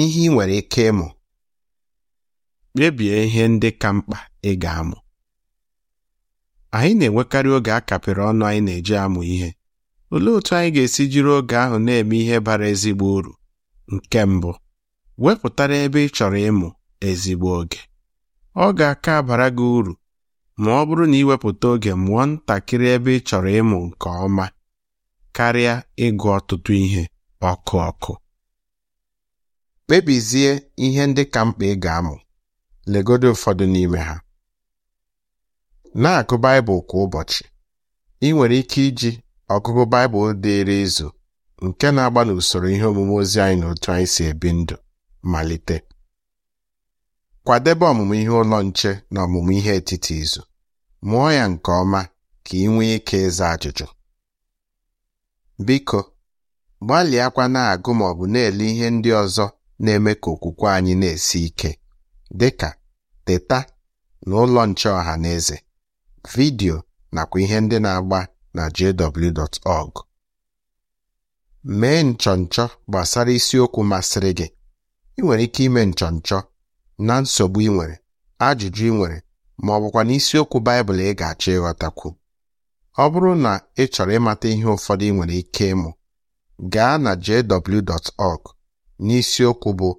ihe ị nwere ike ịmụ kpebie ihe ndị ka mkpa ị ga-amụ anyị na-enwekarị oge a kapịrị ọnụ anyị na-eji amụ ihe olee otu anyị ga-esi jiri oge ahụ na-eme ihe bara ezigbo uru nke mbụ wepụtara ebe ị chọrọ ịmụ ezigbo oge ọ ga-aka abara gị uru ma ọ bụrụ na iwepụta oge mụọ ntakịrị ebe ị chọrọ ịmụ nke ọma karịa ịgụ ọtụtụ ihe ọkụ ọkụ Kpebizie ihe ndị ka mkpa ị ga-amụ, legodo ụfọdụ n'ime ha. Na-agụ Baịbụl kwa ụbọchị. Ị nwere ike iji ọgụgụ Baịbụl dịịrị izu nke na-agba n'usoro ihe omume ozi anyị na otu anyị si ebi ndụ malite. Kwadebe ọmụmụ ihe ụlọ nche na ọmụmụ ihe etiti izu. Mụọ ya nke ọma ka ị nwee ike ịza ajụjụ. Biko, gbalịakwa na-agụ ma ọ bụ na-ele ihe ndị ọzọ na-eme ka okwukwe anyị na-esi ike dị ka teta na ụlọ nche ọha na eze Vidio nakwa ihe ndị na-agba na jw.org mee nchọnchọ gbasara isiokwu masịrị gị ị nwere ike ime nchọnchọ na nsogbu ị nwere ajụjụ ị nwere ma ọ bụkwa na isiokwu Baịbụl ị ga-achọ ịghọtakwu ọ bụrụ na ị chọrọ ịmata ihe ụfọdụ ị nwere ike ịmụ gaa na jw.org n'isiokwu bụ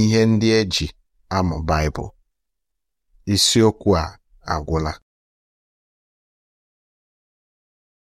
ihe ndị eji amụ Baịbụl isiokwu a agwụla